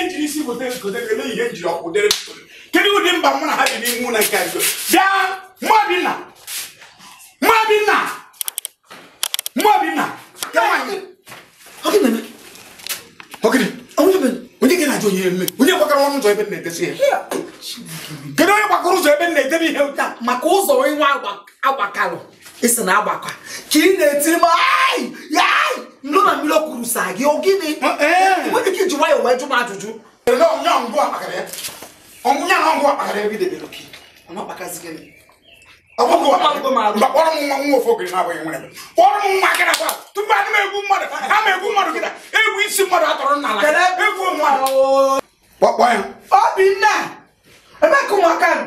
ihe njiri isi bụ gotere ele ihe njiri ọkwụ dere kedu ụdị mba mụ na ha dị n'ime ụlọ nke nso bịa mmadina mmadina mmadina onye gbakọrọ ọnụ ụzọ ebe m na-edesi ya kedu onye gbakọrọ ụzọ ebe m na-edebe ihe ụta maka ụzọ nwa agbakalụ isi na agbakọ ka ị na-etiri m nnoma mmiri kwuru saa gị ọ gịnị nwere ike iji nwayọọ wee jụ m ajụjụ ọnwụnya na ngwa akpakara ebe idebere oke ọgbọgwụ kpọrọ m nwa nwa ofe ogiri na-abụghị nwere kpọrọ m nwa gịra gwa tupu ana m egbu mmadụ a ma egbu mmadụ gịra egwu isi mmadụ atọrọ n'ala egwu mmadụ kpọkpọ ya ọ bụ nne ebee ka ụmụaka nọ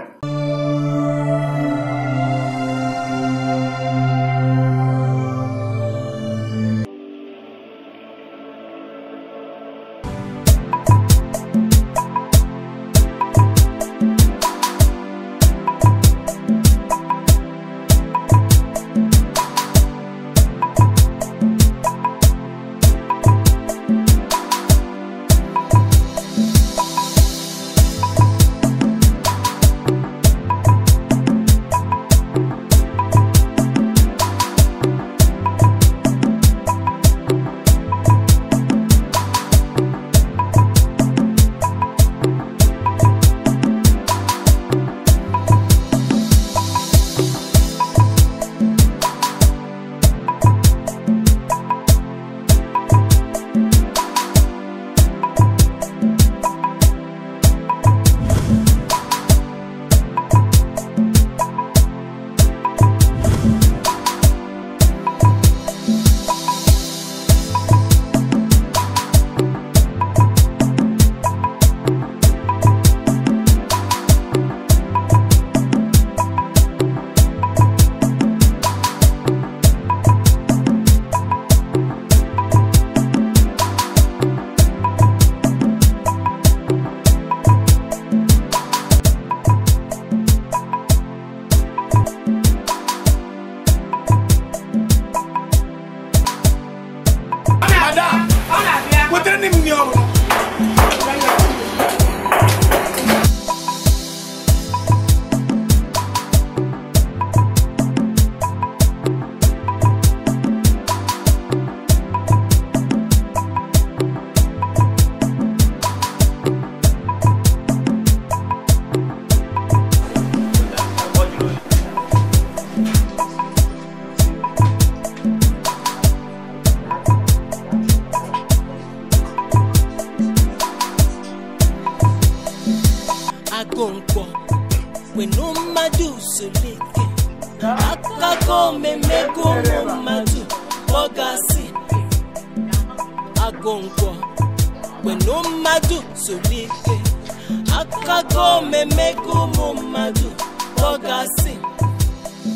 Akagome mmemego mumadu ogasi mmadụ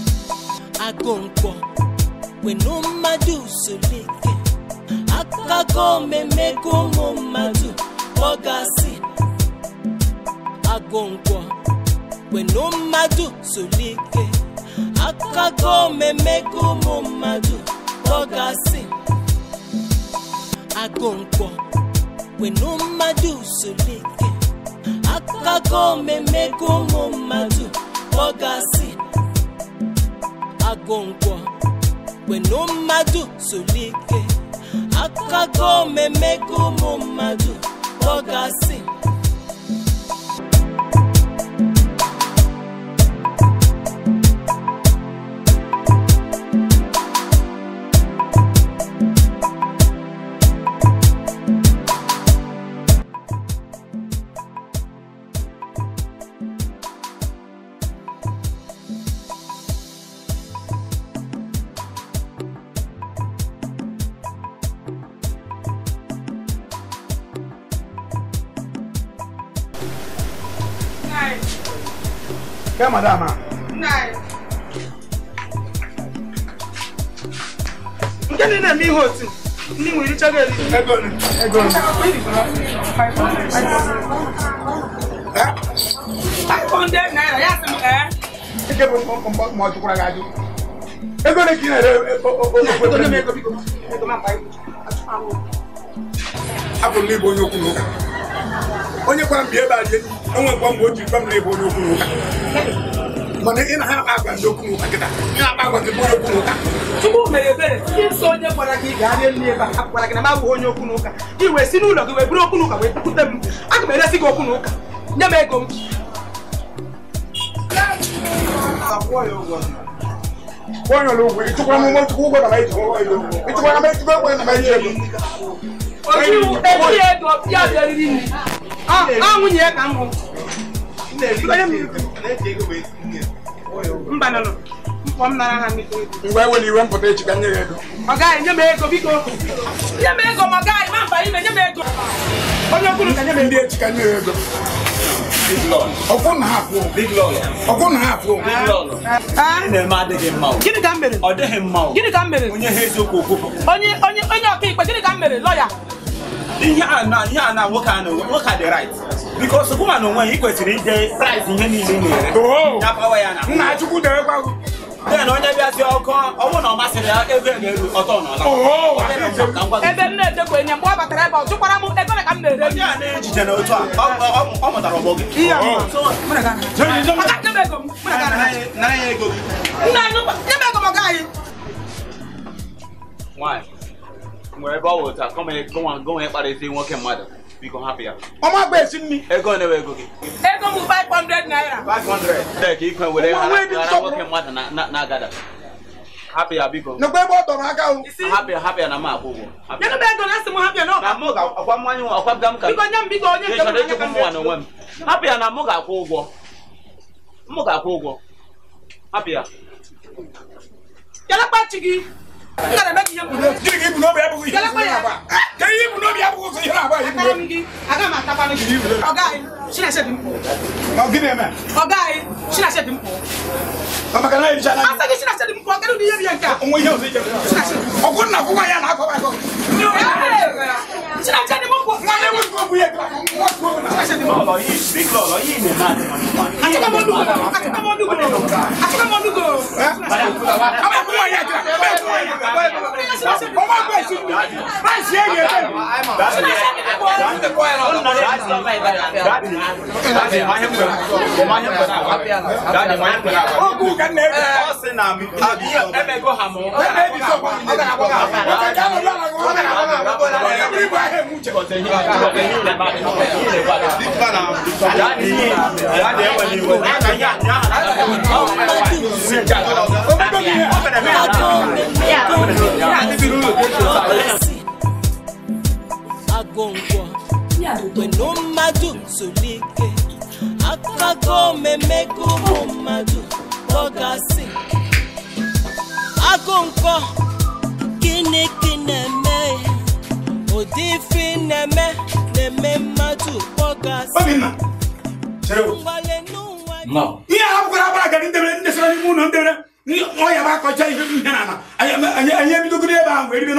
ọ ga-asị agụ nkwọ kwenu mmadụ solike akago mmemego ụmụ mmadụ ọ ga-asị agụ nkwọ kwenu mmadụ solike kago mmemmego ụmụ ọgasị agụngwọ kwenu mmadụ solike akago mmemmego ụmụ ọgasị Kẹ́ madama. Nke ni na-eme ihe otu ndị nwere ichaga eri. Ego ni. Ego ni. Five hundred naira ya sị m ee. Ike bụ mgbọ ma ọ jụkwara gị ajụ. Ego ni ka ị na-ere obodo na-eme ego biko. Abụ m n'ịbụ onye okwu n'ụka. Onye kwara m bi ebe a dị enyi enwekwa mgbe o ji ife m na onye n'ụka mana ị na ha agwa ndị okwu n'ụka nkịta ị na tupu mere ebere ihe nsọ onye gwara gị gaa rie nri ebe a gwara onye okwu n'ụka gị si n'ụlọ gị wee buru okwu n'ụka wee m aga m eresi gị okwu n'ụka nye m ego m Ah, ah, nwunye ya ka m mba nọ mkpọ m nara ha ngwa ewere iwe mpụta echika nye ya ego ọ gaghị nye m ego biko nye m ego ma ọ ma mba ime nye m onye kwuru ka nye m ndị echi nye ya ego ọkwụ na ha kwuo ah, gịnị ka m mere onye ọka ikpe gịnị ka m mere lọya ihe a na ihe a na nwoke a nwoke dị right because ụkwụma onwe ya ị ide price ihe niile na-ere ya pawa ya na nna chukwu debekwa then onye bịazi ọkụ ọnwụ na ọ ya ego na-eru ọtọ n'ọla ebe m na-edekwa enye mgbe ọ batara ebe ọ tụkwara m ego ka m na-ere ndị a na-ejije na otu a ọ mụtara ọgbọ gị nna anyị nyebe ego m ọga anyị nwere ebe ọ wụ kọmị gụnwa ya kparịzie nwoke mmadụ biko hapụ ya ọma bụ esi nri ego newe ego gị ego bụ 500 naira 500 tek ikwe were ghara nwoke mmadụ na-agada hapụ ya biko n'ụgbọ ebe ọ dọrọ aka hapụ ya hapụ ya na ego na hapụ mmanya ọkwa m nye m biko onye nwa m hapụ ya na mụ ga-akwụ ụgwọ mụ ga-akwụ ụgwọ hapụ n kana bɛ k'i ye kun dɛ. jiriki ibunu bɛ bugu yiri sun yɛrɛ ba. kɛ i a taara min di a ka maa ta ban min. ọ̀gá ye sinna se dun kɔ. ɔ gidi yɛn mɛ. ọ̀gá ye sinna se dun a segin sinna se dun kɔ kɛlɛ ni ye biyɛn kan. n ko i y'o se jɛ. sinna se dun kɔ. a kɔ wọn lé wọn gbogbo yẹ gbàgbọ́ wọn tó wọn. lọ́lọ́ yìí big lọ́lọ́ yìí ni náà ni wọ́n ti. àti kọ́mọ́ dùgbò àti kọ́mọ́ dùgbò àti kọ́mọ́ dùgbò. ọmọ ìkú wọn yẹ kí ọmọ ìkú wọn yẹ kí ọmọ bẹ̀ sí mi báyìí sí èyí ẹ̀ bẹ́ẹ̀ mi. ogun kan lè bẹ. ọ̀sìn náà mi. àbí ẹ̀ bẹ̀ gbọ́ hàmọ́. ẹ̀ bẹ̀ bí sọ̀kọ̀ mi. ọ̀gá àwọn ọ̀gá àwọn ọ̀gá àwọn bíbá ẹ̀ mú jẹ. ọ̀tẹ̀yìn agongwa weno mmadụ zụlike akago mmemego ụmụ mmadụ ọgasị agụ nkwọ gịnị gị na-eme ya odifi neme neme mmadụ kpọgasị obinna chere ihe a kwara agbara gara ndebere ndesara n'ime ụlọ ndebere ọ ya bụ akọcha ihe na ala anyị ebidogoro ebe ahụ wee ribe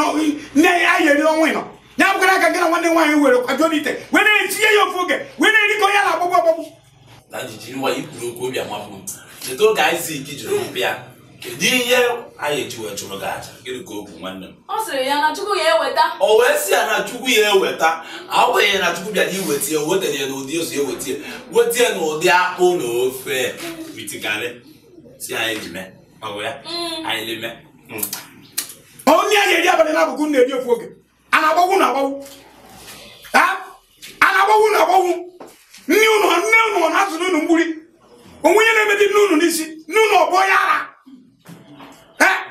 nne anyị eri ọnwa ịnọ ya bụgara aka gị na nwanne nwaanyị were kwajuo n'ite wee na-etinye ya ofu oge wee na-eri ka na-agbagbu agbagbu na jijiri nwa ikwuru okwu obi amapụ cheta oge Aịzik jụrụ bịa kedu ihe anyị eji chụrụ gị aja gịnị ka okwu nwanne m ọ sịrị ya na chukwu ya eweta o wee sị ya na chukwu ya eweta agbanyeghị na chukwu bịara iweta ya wetere ya n'ụdị ụzọ eweta ya weta ya n'ụdị akpụ na ofe mitigarị si anyị ji mee ọgụ ya mm. anyị leme hmm. onye a na-eri abalị n'abụkụ na-eri ofu oge a na-agbawu na agbawu a na-agbawu na agbawu nne ụnụ nne ụnụ na azụ n'ụnụ mgburi onwe onye na-emedi nne ụnụ n'isi nne ụnụ ọgbọ ya ara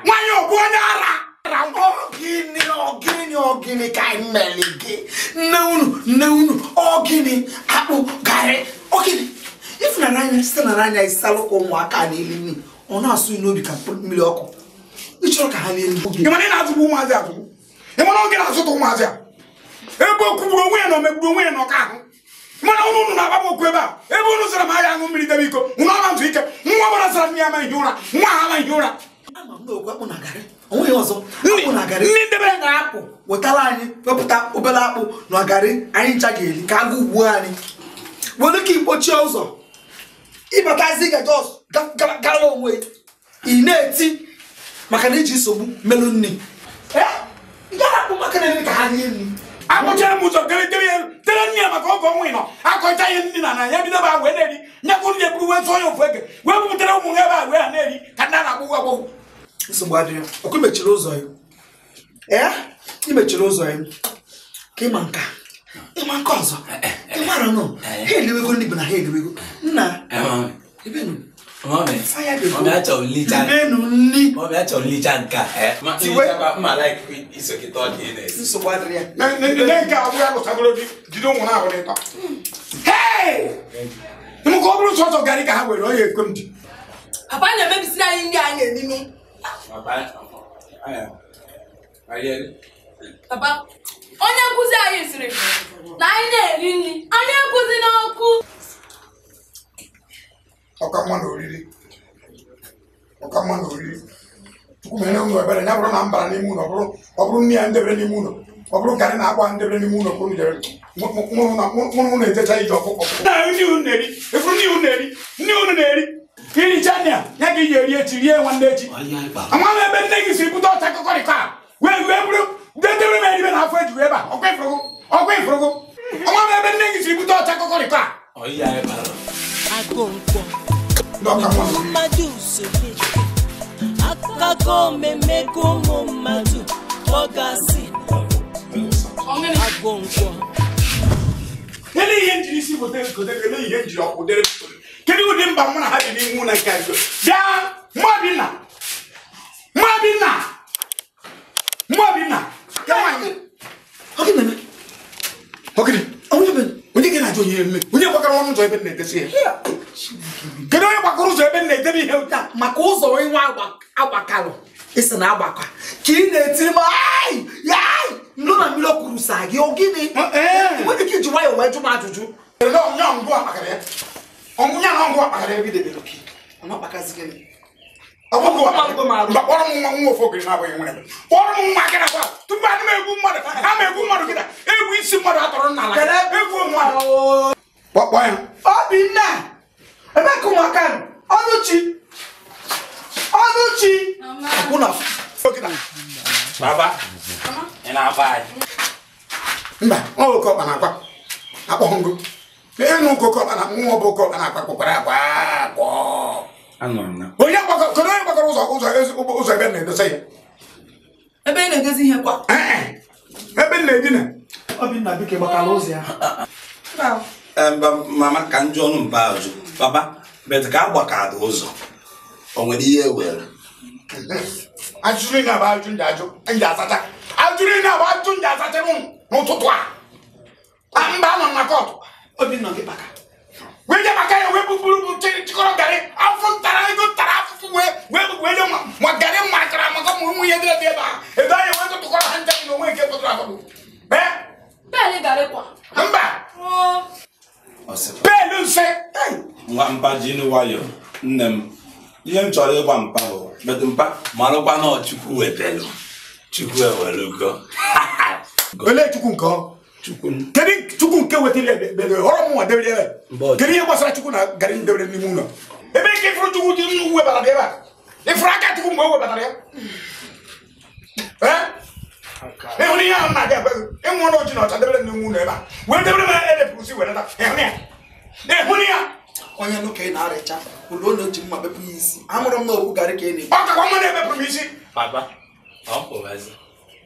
nwanyị ọbụ onye ara ọgịnị ọgịnị ọgịnị ka anyị mere gị nne unu nne unu ọgịnị. akpụ garị ogini ifunanya site na n'anya isalụkwa ụmụaka n'elu nri ọ na-asụ obi ka mmiri ọkụ ịchọrọ ka ha na-elu oge ịmana ị na-azụgbu ụmụazị azụgbu ịmana oge na-azụta ụmụazị a ebe okwugburu onwe ya na omegburu onwe ya na ọka ahụ ebe a ebe ụnụ zara m ahịa aṅụ mmiri debe iko ike nwa ọbara zara m ya ụra nwa ụra ndị debere na-apụ wetara anyị wepụta obere akpụ na ọgarị anyị ncha ga-eri ka agụ ugbu anyị were ka ikpochie ụzọ ịbatazi gajos gara onwe ị na-eti maka na iji nsogbu merụ nri akpụcha m ụzọ tere nne ya maka ịnọ akọcha ihe na na ya bido ba wee na-eri nyekwu nne bụrụ wee ya ofu ege wee bupụtara ụmụ ha ebe a wee ha na-eri ka ndị na-agbụgwọ nsogbu adịghị ọkụ mechiri ụzọ ya ee ị mechiri ụzọ ya ka ịma nka ịma nka ọzọ ịmara nọ ha eliwego ndị bụ na ha eliwego nna ebenu Mọ̀mí àchọ̀ nlicha nka. Ibenu nli. Mọ̀mí àchọ̀ nlicha nka. Tiwe. Mma like isokita ọ dị ị na-esi. Nsogbu adịrị ya. Nne nke abụọ ya lụtagoro di jide ụmụ ahụ n'ịtọ. Hei! Mụ ka ọ bụrụ sọsọ garị ka ha were ọ ya ekwe m di. Papa na-emebisiri anyị ndị anyị eninu. Eh, onye nkụzi anyị siri, na anyị na-eri nri anyị ekwuzi n'ọkụ ọkamma na oriri ọkamma na oriri tupu mere ụlọ ebere ya bụrụ na m bara n'ime ụlọ ọ bụrụ nri ya ndebere n'ime ụlọ ọ bụrụ karị na akwa ndebere n'ime ụlọ bụrụ jere mụrụ na ejecha ije ọkpụkpọ efuru nne unu na-eri nne unu na-eri kirichania ya ga iji eri echi rie nwanne echi ama m ebe nne gị si bute ọcha kọkọrịka wee wee bụrụ dedere m eribe na afọ ejiwe ebe a ọkwa ifụrụgụ ọkwa ifụrụgụ ama m ebe nne gị si bute ọcha kọkọrịka akụkọ ihe njiri isi gotere gotere ihe njiri ọkwụ dere kedi wudi mba mụ na ha bi n'ihu na nke a bịa mmụọ bi na mmụọ bi na mmụọ bi na ya nwaanyị ọkị na-eme ọkịrị onye ebe onye ga na-ajụ onye eme onye gbakọrọ ọnụ ụzọ ebe na-edesi ya kedu onye gbakọrọ ụzọ ebe na-edebe ihe ụta maka ụzọ onye nwa agbakalụ isi na agbakọ ka ị na-etiri m ayi yayi nnu na mmiri okwuru saa gị ọ gịnị nwere ike iji nwayọọ wee jụ m ajụjụ ọnwụ ya na ngwa ọkpakara ebe idebere kpọrọ m nwa nwa ofe na-abụghị nwere kpọrọ m nwa gị nakwa tupu adị m egwu mmadụ a egwu mmadụ egwu isi mmadụ atọrọ egwu mmadụ ya obinna ka ụmụaka ọnụchi ọnụchi mba ọ ọkpa na akwa ngụ enu kokọba na mmụọ bụ kọba na akpakpụkpara akpa akpọ onye kedu onye gbakọrọ ụzọ ụzọ ụzọ ebe na-edosa ya ebe na-edozi ihe kwa eh, eh. ebe na-edina obinna bike gbakara ụzọ ya mama ka ndị ọnụ mba ajụ papa bet ka a gbakara ụzọ o nwere ihe e were ajụrụ na-abụ ajụ ndị ajụ ndị asacha ajụrụ na-abụ ajụ ndị asacha n'ụtụtụ a mba nọ na kọtụ obinna gị baka wee je maka ya wee bụbụrụ chịkọrọ garị afọ ntara ego ntara afụfụ wee wee wee ma garị ma akara maka ụmụ ụmụ ihe dịrị ebe a ebe anyị wee tụtụkọrọ ha njem na onwe nke pụtara afọ mba pelu mfe mba nwayọ nne m ihe m chọrọ mpa bụ mpa marụkwa na chukwu olee chukwu nke ọ chukwu kedu chukwu nke wetara ọrọ mụnwa debere ebe kedu ihe gbasara chukwu na garị debere n'ime ụlọ ebe nke ịfụrụ chukwu dị nnu webatara ebe a ịfụrụ aka chukwu mgbe o webatara ya ịhụrụ ihe ahụ na-aga ebe ịnwụ ọnụ ọjị na ọcha debere n'ime ụlọ ebe a wee debere m edepụrụ si ịhụrụ ya ịhụrụ ya onye ị na-arịcha ụlọ onye ji mma bepụ ya isi amụrụ m na okwu ka ị na m isi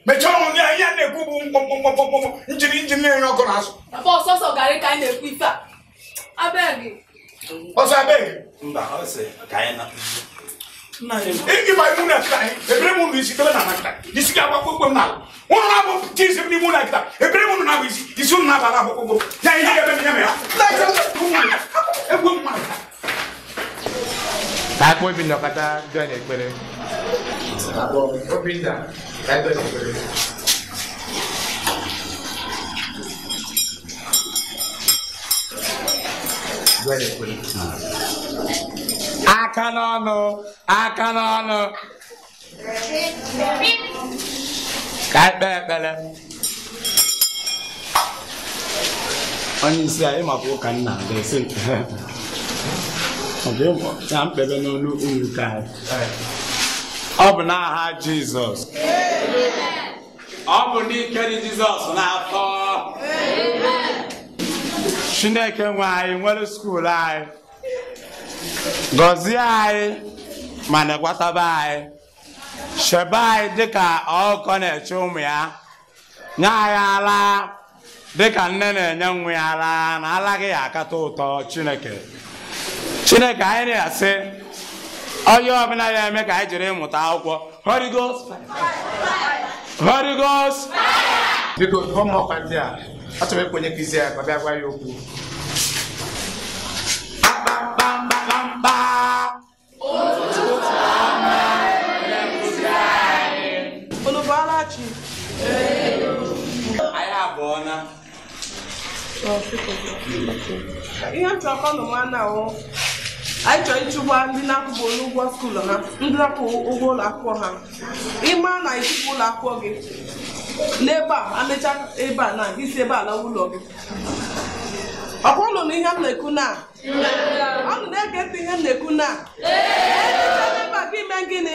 mechaa ọnwụ ya ihe a na-ekwu bụ mkpọmkpọmkpọmkpọ njiri njiri na-enye ọkụ na azụ ọsọsọ garị ka anyị na-ekwu ife a abeg ọsọ abeg mba ọ sị ka anyị na ịgba imu na kịta ebere mụ isi tebe na nakịta isi ga agbakwa okwe m n'ala ụnụ na-abụ ti isi n'ime ụlọ akịta ebere mụ na-abụ isi isi ụnụ na-aba na akwụkwọ ya ihe ga-ebe m ya mere egwu mmadụ ka akpọ obi na ọkata bịa na ekpere obinda aka n'ọnụ aka n'ọnụ ka ekpe ekpere onye isi a ịmapụ ụka nna ga-esi nke ha ọ bụ mkpebe n'olu ụmụ anyị ọ bụ n'aha Jizọs ọ bụ n'ike dị Jizọs n'afọ Chineke nwe anyị nwere skuul anyị gọzie anyị ma na anyị sheba anyị dịka ọkọ na-eche ụmụ ya nye anyị ala dịka nne na-enye nwa ya ala na alaghị akata ụtọ Chineke Chineke anyị na-asị onye ọbụla na-eme ka anyị jiri ịmụta akwụkwọ Holy Ghost Holy Ghost biko ọmụọkwa ndị a achọrọ ịkwenye ka izi ya ka ọ bịa gwa ya okwu ihe m chọrọ ka ọ nọ nwa na anyị chọrọ ịchụgba ndị na-akwụghị ụgwọ skuulu ha ndị na-akwụ ụgwọ ụlọ akwụkwọ ha ịma na ịchụpụ ụlọ akwụkwọ gị n'ebe a amecha ebe a na isi ebe a lawa ụlọ gị ọkwa ụlọ na ihe m na-ekwu na ọnụ na-ege ntị ihe m na-ekwu na ebe a gị mee gịnị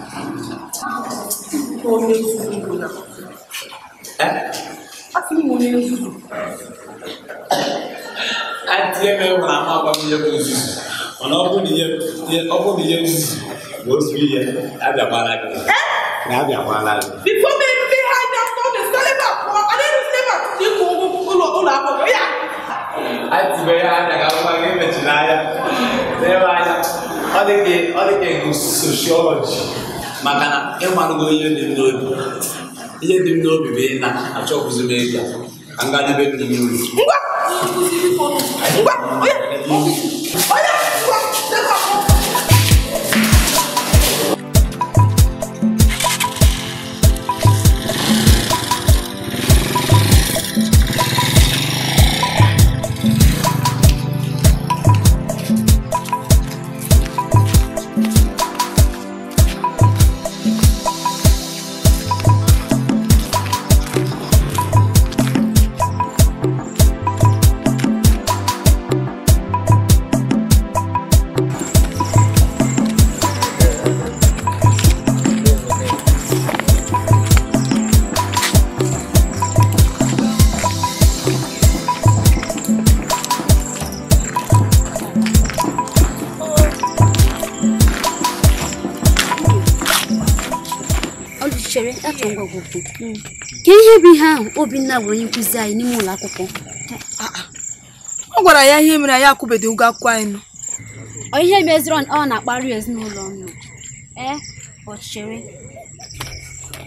ko ne susu na a fi mu ne susu a tiɲɛ bɛ wala a ma ba mi yɛ ko susu ɔnà ɔkò mi yɛ ɔkò mi yɛ susu o su yɛ a bɛ before me be high down for the sale ba kɔ ale de sale ba ti ko olu olu akɔrɔ ya. a ti bɛ y'a daga kuma k'e bɛ ti n'a ya ne b'a ya ɔ de kɛ ɔ de sociology maka na ịmarụgo ihe dị m n'obi ihe dị m n'obi bụ ị na-achọkwụzi m ego ka m gaa n'ebe dị n'ihu ka ihe bụ ihe ahụ Obinna bụ onye nkụzi anyị n'ime ụlọ akwụkwọ ọ gwara ya ihe mere anyị akwụbeghị ụgwọ akwụkwọ anyị nọ ihe meziri ọ na-akparị ezinụlọ nọ ee ọchịchịrị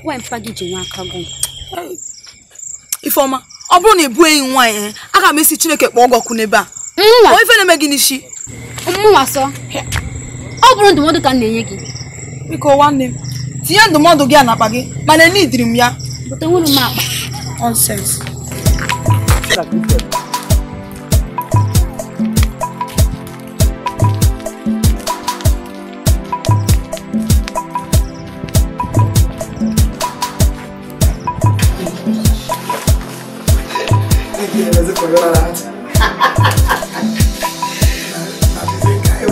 nwa mpa gị ji nwa aka gwụ Ifeọma ọ bụrụ na ị bụghị enyi nwaanyị e, aga m esi Chineke kpọọ ọgọkụ n'ebe a ife na-eme gị n'isi mụnwa sọ ọ bụrụ ndụmọdụ ka m na-enye gị biko nwanne m tinye ndụmọdụ gị a n'akpa gị mana enidiri m ya butenwuru m akpa nonsense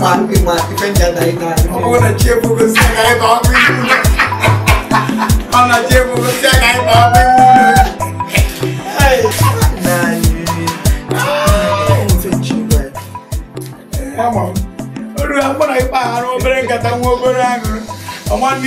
Iman, iman, iman jadai na. Aku nak cium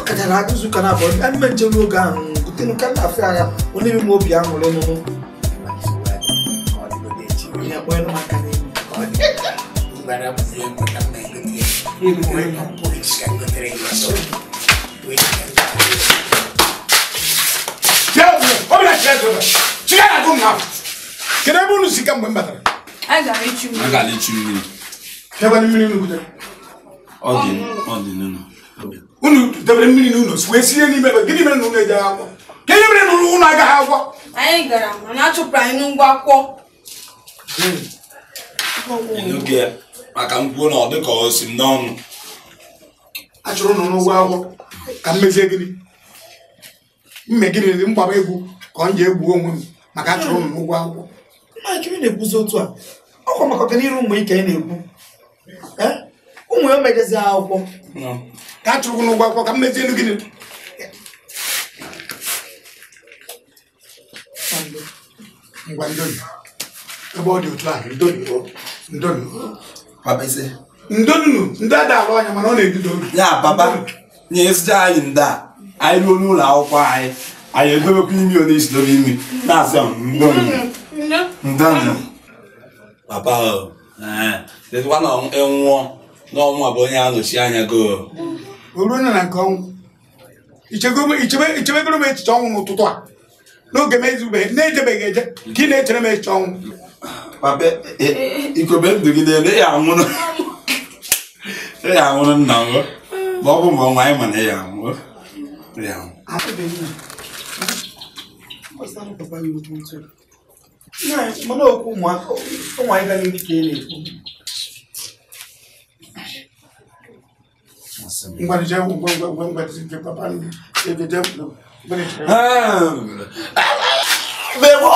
akadara aga izu ụka na-abụọ bịa ime njem n'oge ahụ gotenụ nke na afọ agha onye ime obi aṅụrị ọṅụṅụ kedu ebe unu si ka mgbe m batara mmiri Ọ ọ dị dị unu debere mmiri n'ụlọ si wee sie n'ime ebe gịnị mere na unu eji agwọ, ka ihe mere na unu agaghị agwọ anyị gara mana achụpụrụ anyị n'ụgwọ akwụkwọ maka mkwuo na ọ dị ka o si m n'ọnụ a chụrụ ụnụ n'ụgwọ akwụkwọ ka mmezie gịnị mme gịnị dị mgbaba egwu ka ọ ji egwu onwe m maka a chụrụ ụnụ n'ụgwọ akwụkwọ na-ekwuzi otu a ọkwa maka ọganiru ụmụ ike ị na-ekwu ụmụ ya mejezi akwụkwọ ka a chụrụ n'ụgwọ akwụkwọ ka m mezie elu gịnị ngwa ndoni ebe ọ dị otu a ndonu ndonu ndị ada alụ anya mana ọ na-ebido ya papa nye ezute anyị ndị a anyị ruo n'ụlọ akwụkwọ anyị anyị edobekwa imi ọ na-esi dobe imi na-asị ndonu ndonu papa ọ eh, eh, nwụọ na ọnwụ abụ onye anọchi anya go o ruo na nke ọnwụ ichebegoro m echiche ọnwụ n'ụtụtụ a n'oge m ezubeghị na-ejebeghị eje ka ị na-echere m echiche ọnwụ papa e, e, ikobe ndụ gị na-ele ya anwụrụ e, ya anwụrụ nna m ma ọ bụ mgbe ọnwa anyị mana ya anwụrụ ya anwụ mana okwu ụmụaka ụmụ anyị ga n'ihu ka ị na-ekwu ngbanijẹwu ngbanijẹwu ngbanijẹwu bẹẹ bọ.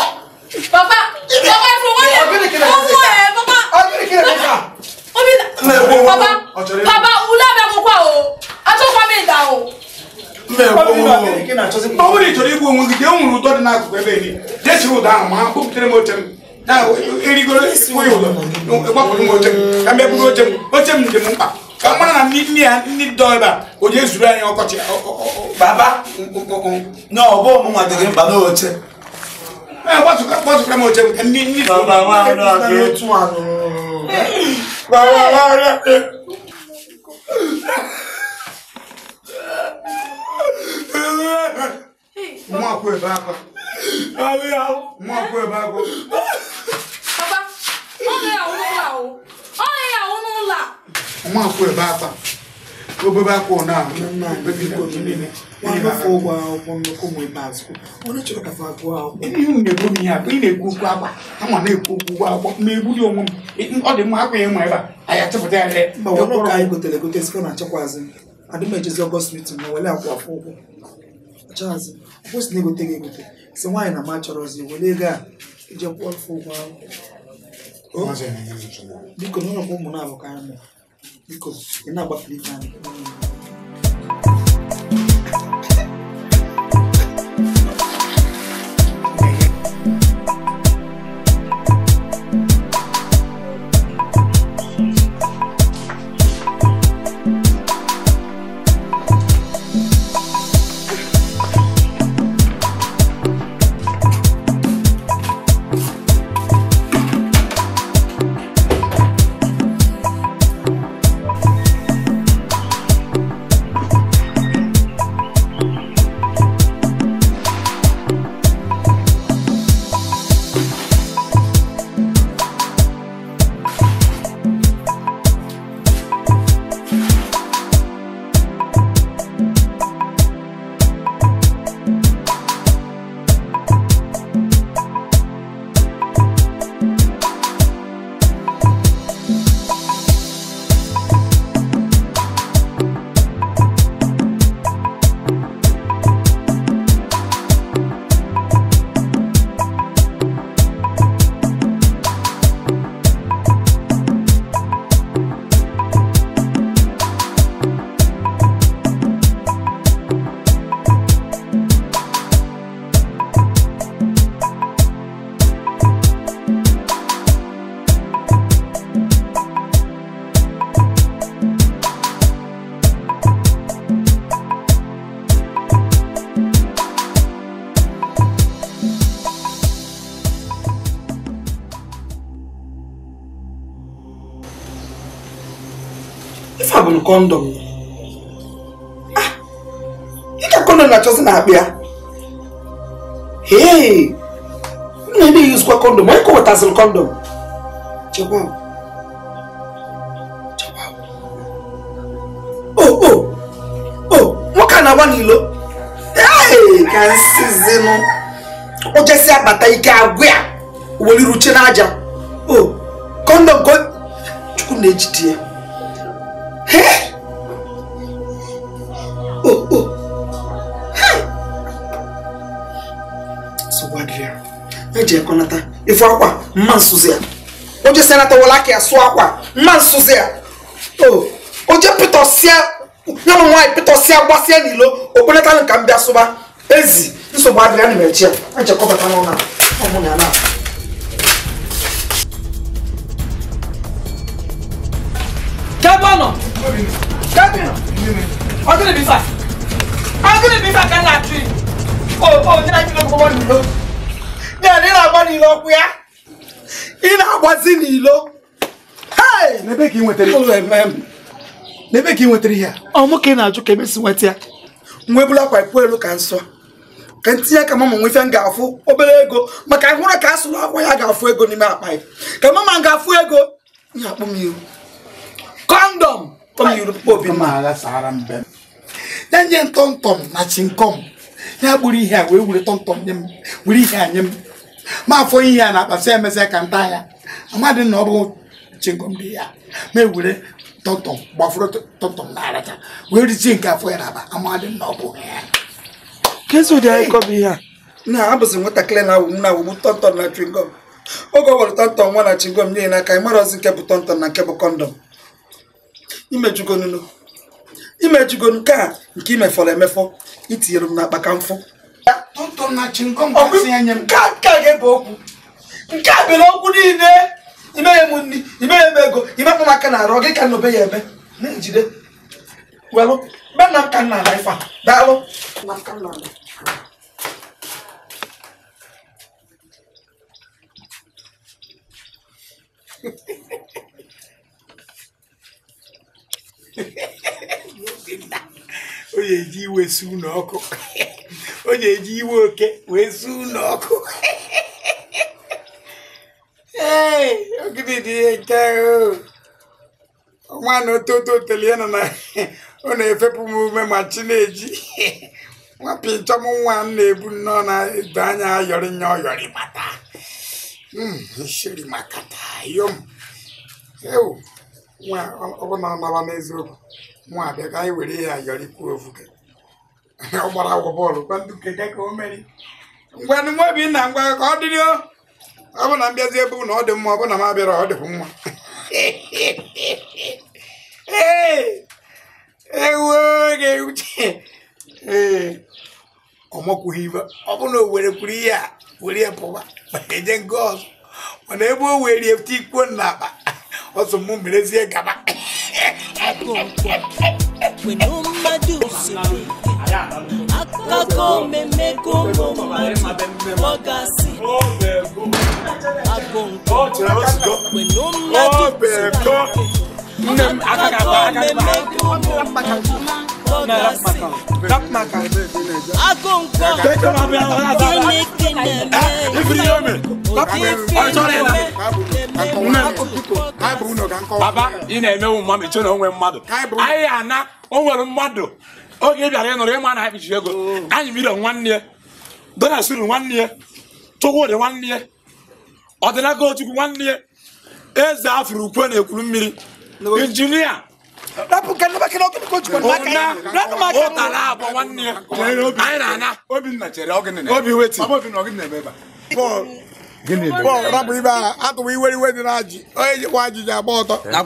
baba baba fowóyè owó ẹ baba baba baba wula bẹ kó kọ o atọkọ mi da o. mbẹ wo o de jọrọ igbo nwunye de nwuru ụtọ dị n'akụkụ ebe ni jesi ụda ahụ ma kpọpụtere m oche m na erigoro oyi ụlọ gbapụrụ m oche m ka m bịa buru oche m oche m dị m mkpa kamara na ni ni ni dɔɔba o de zuru anyi ɔkɔtɛ ɔɔ. baba na ɔbɔ mu ma dege baba o cɛ. ɛ bɔsu ka bɔsu kama o cɛ ni ni. baba wa lọ ke tún wa nù. baba wa lọ ke. mu àpò ẹ̀ bá kọ. mu àpò ẹ̀ bá kọ. baba ọ lè àwọn ọmọ wa o ọ lè àwọn ọmọ wa. nwa akwụ ebe akpa obebe akwa na ụgwọ na-ekwu m ihe akwa ị na-ekwu okwu akwa ama na-ekwu ụgwọ akwụkwọ ma egburi onwe m ọ dị mma akwa ya nwa ebe a ya lee anyị gotere egote na ma ụgwọ na-egote gị egote si nwaanyị na ma chọrọzi ego a ije kwụọ ụgwọ ahụ biko n'ụlọ ụmụ na-abụ ka en yanabadilika kọndọm dịka ah, kọndọm na-achọsị na akpa ee m na-eme yuzikwa kọndọm onye kọwetasịrị kọndọm oh, oh, oh, nwoke a na-agba n'ilo ee ka nsizinụ ụjesi akpata ike agụ ya weliruche n'aja o kọndọm ka chukwu na-ejide ya eji ekonata ifu akwa mma nsuzi a oje senata wolaki asụ akwa mma nsuzi ya oje pitosia ya na nwaanyị pitosia gbasia n'ilo okpenata nka mbịa sụba ezi nsogbu adịrịa na mechi ya ejekọbata n'ụlọ ọmụ na ya na Kẹ́bọ̀nà Kẹ́bìnà ọdún ìbí fà ọdún ìbí fà kan náà tù ó ó ní láti lóko bọ́ nìlò ní àná ìlà bọ́ nìlò ọ̀pẹ́yà ìlà bọ́ sí nìlò. N'ebe ka ị nwetara n'ebe ka ị nwetara ihe a ọ mụ ka ị na-ajụ ka emesi nweta ya nwa ebula akwa ikwu elu ka nsọ ka ntinye aka mama nwe ife m ga-afụ obere ego maka hụrụ ka a sụrụ akwa ya ga-afụ ego n'ime akpa ya ka mama m ga-afụ ego ya akpụ m ihu condom tom yuru obi ma ala sara mbe na nye tom tom na chinkom ya gburu ihe a wee wure tom tom nye m were ihe a nye m ma afọ ihe a na-akpasa emesịa ka nta ya amadị na ọ bụ chinkom dị ya ma ewure tọmtọm gbafuru tọmtọm na-aracha wee rizie nke afọ ya na-aba amadị na ọ bụ ya kesu dị anyị kọbụ ihe a na abụzi nwatakịrị na awụ na awụgbu tọmtọm na chingom oge ọ gwara tọmtọm nwa na chingom nye n'aka ị mara ozi nke bụ tọmtọm na nke bụ kọndọm imejugonu imejugonu nke a nke imefọrọ emefọ itinyere m n'akpa ka mfụ nke a ga-ebe okwu nke a bere okwu niile imeghe m nri imeghe m ego imepụ m aka na arụ gị ka nnobe ya eme na-ejide welụ be nna m ka nna ala ife a daalụ Hehehehe o na-eji iwe ọkụ o na-eji iwe oke wee su ụlọ ọkụ ee nke ọnwa na ototo tele na ọ na-efepụ m ume ma chi na-eji nwapị nchọm nwa m na-ebu nnọọ na-edo anya ayọrị nya ọyọrị mata isiri hmm, makata yom ewu nwa ọ na n'eziokwu nwa abịa ka anyị were ihe yọrọ ikwu ofuke ọ gbara agwọ bọọlụ ngwanụ nwa bi ngwa ka o dịrị ọ bụ na mbịazi ebe ọ dị mma ọ bụ na m abịara ọ dịkwu mma ee ọ ọ bụ na o were kwuru ihe a mana ebe o were na akpa ọsọ mú mìíràn sí ẹgàmá. pẹ̀lú mmadụ siri akụkọ mmemme gongo mmadụ ọ gasị agụnkọ pẹ̀lú mmadụ siri akụkọ mmemme gongo mmadụ Rap maka. Akonko. Kene Baba, ị na-emewu mma mechie na onwe mmadụ. Anyị ana onwere nwere mmadụ. Oge ị bịara ịnụrụ ịma na ha ego. Anyị mire nwanne ya. Dona nwanne ya. nwanne ya. nwanne ya. Eze Afro ukwe na-ekwuru mmiri. Injinia rapụ ka nabakịrị nke o jikwa n'aka ya rapụ maka ya ụtara agba ya anyị na-ana obinna chere ọgịnị obi weti ọbọbinna ọgịnị na-eme ebe bọọlụ rapụ ibe aha atụwa iwere iwe dị na ajị onye jikwa agba ọtọ a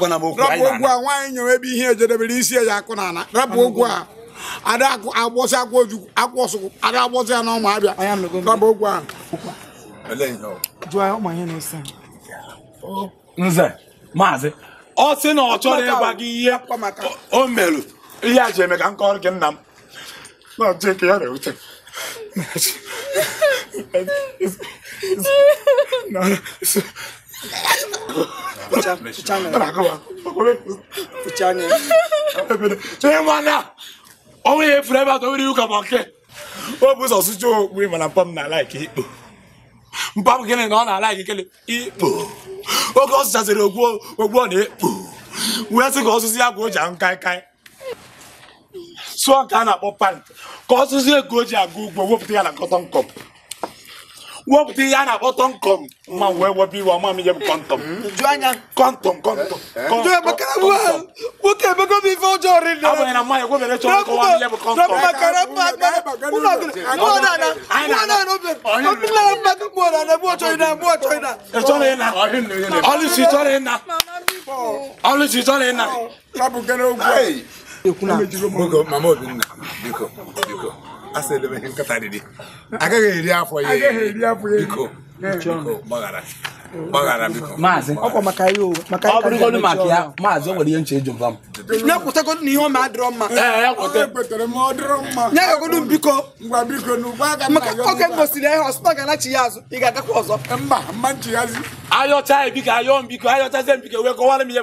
nwaanyị ya akụ na ala a ọ sị na ọ chọrọ ịgwa gị ihe o merụ ihe a ji eme ka m kọrọ gị nna m na ọjọọ nke ya na-ewute onwe ya efuru ebe atọ nwere iwu ka ma nke o bụ ụzọ sụcha okpu mana mpọ m na-ala ikpe ikpo mpọ m gịnị na ọ na-ala ikele ikpo oge ọ sụchasịrị ogwu ogwu ọ na-ekpu wee sị ka ọsụsụ ya ka ji ahụ kaikai sụọ ka a na-akpọ pant ka ọsụsụ ego o ji aga ugbo wepụta ya na kọtọn kọp wọ́n ti yá na kọ́tọ́ nkọ́m ma wọ ẹwọ bí wọ́n máa mi yẹ kọ́ntọ́m. jọ́nyà kọ́ntọ́m kọ́ntọ́m. jọ́nyà bàkàrà wà wọ́n kẹ́ bẹ́ẹ̀ kó mi fọ́ jọ rí lọ. àwọn ẹ̀rọ máa yẹ kó bẹ̀rẹ̀ sọ kó wà mí yẹ kọ́ntọ́m. dọ́kun bàkàrà fún agbára kúlọ̀ kúlọ̀ nana kúlọ̀ nana bẹ̀ kúlọ̀ nana bẹ̀ kúlọ̀ nana bẹ̀ kúlọ̀ nana bẹ̀ kúlọ̀ nana. ìtọ́lẹ̀ yẹn na ọlùsì ìtọ́lẹ̀ yẹn na ọlùsì ìtọ́lẹ̀ yẹn na. asị elebeghị nkata riri agaghị eri afọ ya biko gbaghara biko ọ bụrụgodu maka ya maazị o nwere ihe nche eji mba m ya na ihe ọma adịrọ mma ya gagodu biko maka oge gosiri ihe ọsụta ga ya azụ ị ga-agakwa ọzọ ayọcha ya ayọ ayọchazie wee kọwara m ihe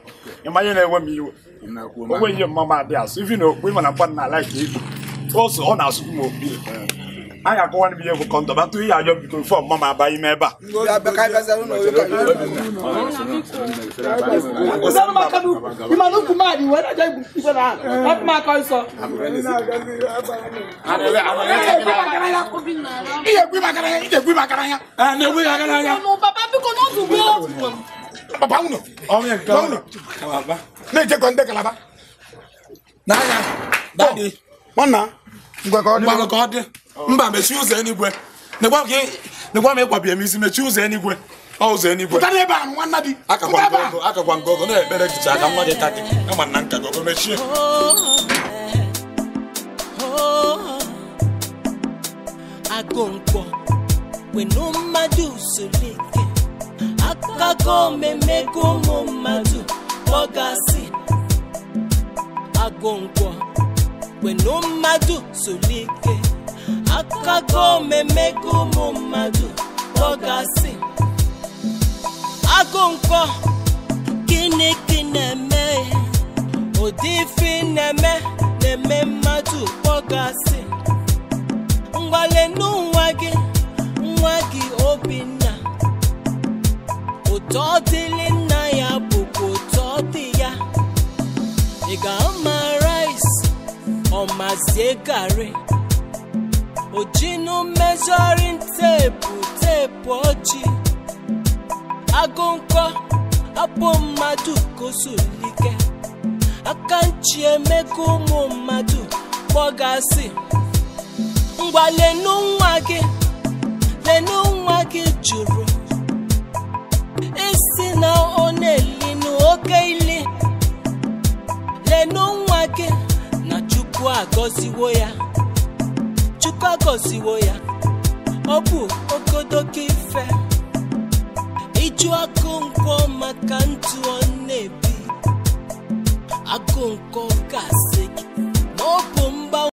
nyamanye na ewe m iwe onwe ihe mma m adị asụ ivi na okpukpe mana mkpa na alaik ibu ose ọ na-asụ m okpukpe anyị akọwa n'ime ihe bụ kọntọ batụ ihe ajọ bikoro fọm mma m aba ime ebe a ihe egwu makara ya na-egwu ya gara ya papa unu na-ejekwa ndị kalaba n'anya nwanna ngwa ka ọ dị mba ụzọ enigwe negwa m m isi mechie ụzọ enigwe ọ ụzọ enigwe pụtara ebe a nwanna di akakwa nke ọgọ na-ekpere jicha aka nwa gị ka ama na nka akago mmemmego ụmụ mmadụ kpọgasị agụ ngwọ kwenu mmadụ solike akago mmemmego ụmụ mmadụ kpọgasị agụ ngwọ gịnị gị na-eme ụdị ife ụtọ nna ya bụkwa ụtọ dị ya ị ga-ama ọ ọmazie garị ojinu mezurin teepu teepu ọjị agụ nkọ abụ mmadụ kosulike aka nchi emeka ụmụ mmadụ kpọgasị ngwa lenu nwa gị lenu nwa gị jụrụ na ọ na-eli n'oke ili lenu nwa gị na chukwu agọziwo ya chukwu agọziwo ya ọ bụ okodoko ife ịjụ akụ maka ntụ ọ na-ebi akụ nkwọ gasị